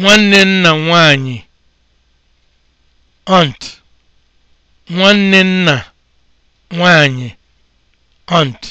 nwanne nna nwanyị ọnt.